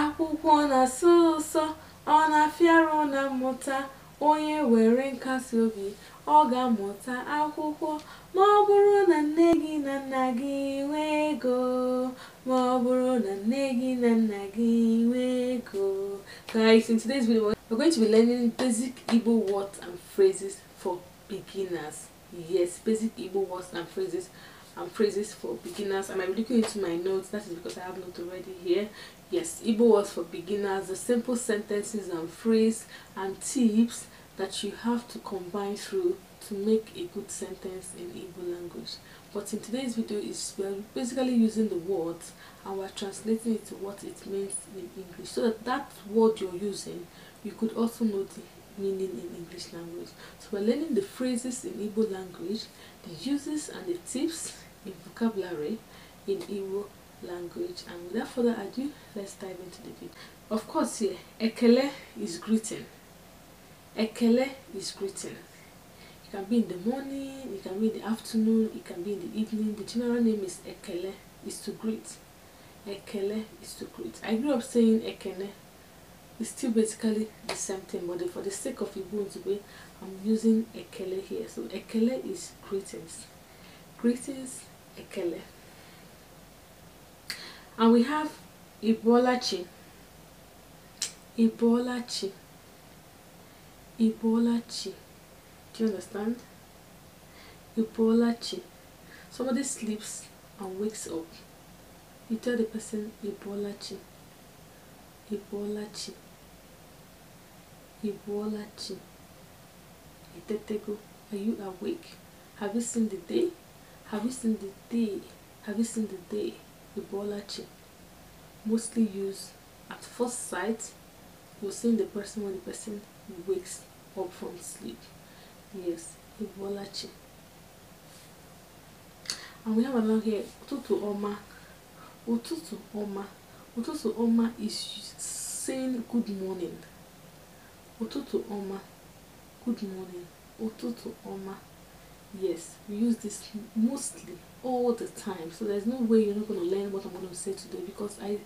Akwụkwọ na-asọ ụsọ, ọ na-afịara na mmụta. Onye were nkasiobi, ọ ga-amụta akwụkwọ. Ma ọ bụrụ na nne gị na nna gị nwee ego, ma ọ bụrụ na nne gị na nna gị nwee ego. Guys, in today's video, we're going to be learning basic Igbo words and phrases for beginners. Yes, basic Igbo words and phrases and phrases for beginners i am looking into my notes that is because i have not already here yes Ibo words for beginners the simple sentences and phrases and tips that you have to combine through to make a good sentence in Ibo language but in today's video is we're basically using the words and we're translating it to what it means in English so that that word you're using you could also know the meaning in English language. So we're learning the phrases in Igbo language, the uses and the tips in vocabulary in Igbo language. And without further ado, let's dive into the video. Of course here, Ekele is greeting. Ekele is greeting. It can be in the morning, it can be in the afternoon, it can be in the evening. The general name is Ekele, is to greet. Ekele is to greet. I grew up saying Ekele it's still basically the same thing but for the sake of be, I'm using Ekele here so Ekele is greetings greetings Ekele and we have Ibolachi Ibolachi Ibolachi do you understand Ibolachi somebody sleeps and wakes up you tell the person Ibolachi Ibolachi Ibolachi. Etetego, oh, are you awake? Have you seen the day? Have you seen the day? Have you seen the day? Ibolachi. Mostly used at first sight, you're seeing the person when the person wakes up from sleep. Yes, Ibolachi. And we have another here, Ututu Oma. Ututu Oma. Ututu Oma is saying good morning. ụtụtụ ọma good morning ụtụtụ ọma yes we use this mostly all the time so there's no way you're not going to learn what i'm going to say today because i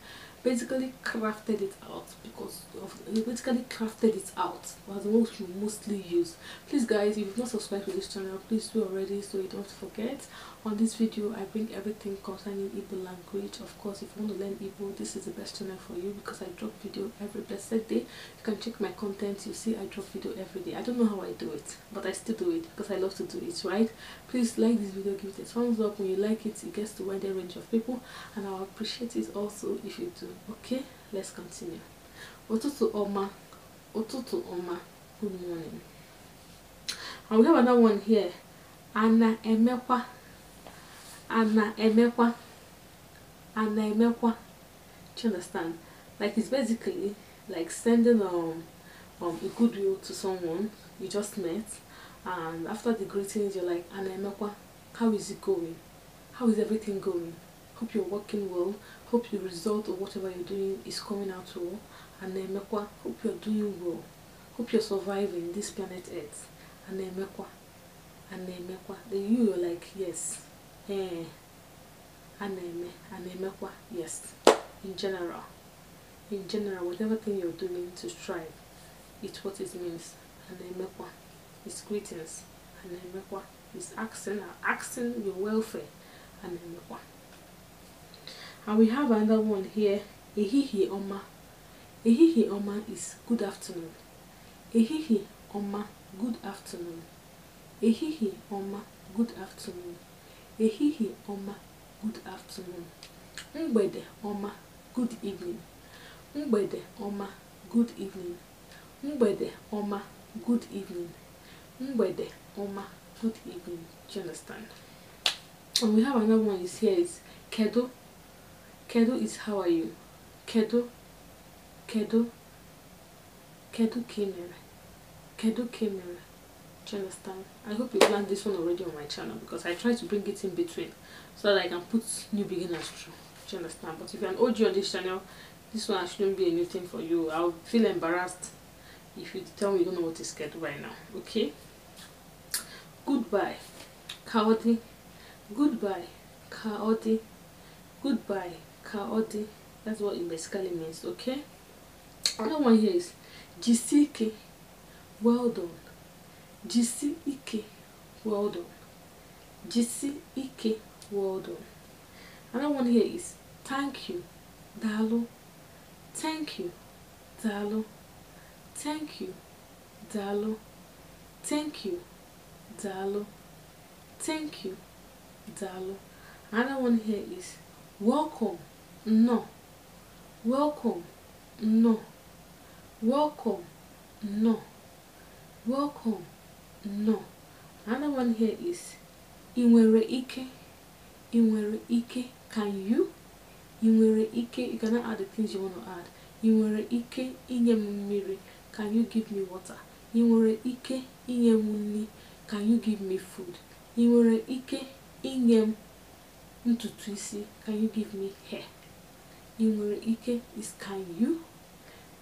basically crafted it out because of basically crafted it out was what you mostly use please guys if you've not subscribed to this channel please do already so you don't forget on this video i bring everything concerning Igbo language of course if you want to learn Igbo this is the best channel for you because i drop video every blessed day you can check my content you see i drop video every day i don't know how i do it but i still do it because i love to do it right please like this video give it a thumbs up you like it it gets to wider range of people and i'll appreciate it also if you do okay let's continue to oma to oma good morning and we have another one here ana emekwa ana emekwa ana emekwa do you understand like it's basically like sending um um a goodwill to someone you just met and after the greetings you're like ana emekwa how is it going how is everything going? Hope you're working well. Hope the result of whatever you're doing is coming out well. And mekwa. hope you're doing well. Hope you're surviving this planet Earth. And mekwa. and mekwa. Then you are like, yes. Eh. And mekwa. yes. In general. In general, whatever thing you're doing to strive, it's what it means. And mekwa. it's greetings. And mekwa. it's asking, asking your welfare. and Ngwa. And we have another one here, Ehihi Oma. Ehihi Oma is good afternoon. Ehihi Oma, good afternoon. Ehihi Oma, good afternoon. Ehihi Oma, good afternoon. Mgbede Oma, good evening. Mgbede Oma, good evening. Mgbede Oma, good evening. Mgbede Oma, good evening. Do you understand? And we have another one is here is Kedo. Kedo is how are you? Kedo. Kedo. Kedo Kimera. Kedo Kimera. Do you understand? I hope you learned this one already on my channel because I try to bring it in between so that I can put new beginners through. Do you understand? But if you're an OG on this channel, this one shouldn't be a new thing for you. I'll feel embarrassed if you tell me you don't know what is Kedo right now. Okay? Goodbye. Cowardly. Goodbye, Kaoti. Goodbye, Kaoti. That's what it basically means, okay? Another one here is Jisike. Well done. Jisike. Well done. Jisike. Well done. Another one here is thank you, Dalo. Thank you, Dalo. Thank you, Dalo. Thank you, Dalo. Thank you, Dalo. Another one here is welcome, no. Welcome, no. Welcome, no. Welcome, no. Another one here is inwere ike, inwere ike. Can you? Inwere ike. You cannot add the things you want to add. Inwere ike inye m Can you give me water? Inwere ike inye m Can you give me food? Inwere ike inye m ntutu isi can you give me hair ị nwere ike is can you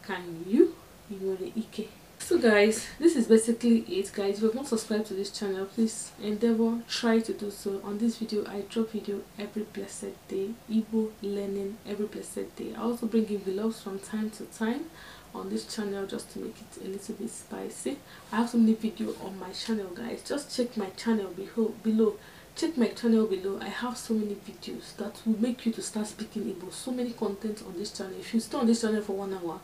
can you ị nwere ike so guys this is basically it guys if you've not subscribed to this channel please endeavor try to do so on this video i drop video every blessed day Igbo learning every blessed day i also bring in vlogs from time to time on this channel just to make it a little bit spicy i have so many video on my channel guys just check my channel below check my channel below i have so many videos that will make you to start speaking Igbo so many content on this channel if you stay on this channel for one hour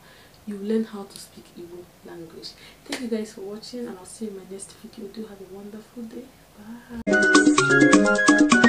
you learn how to speak Igbo language thank you guys for watching and i'll see you in my next video do have a wonderful day bye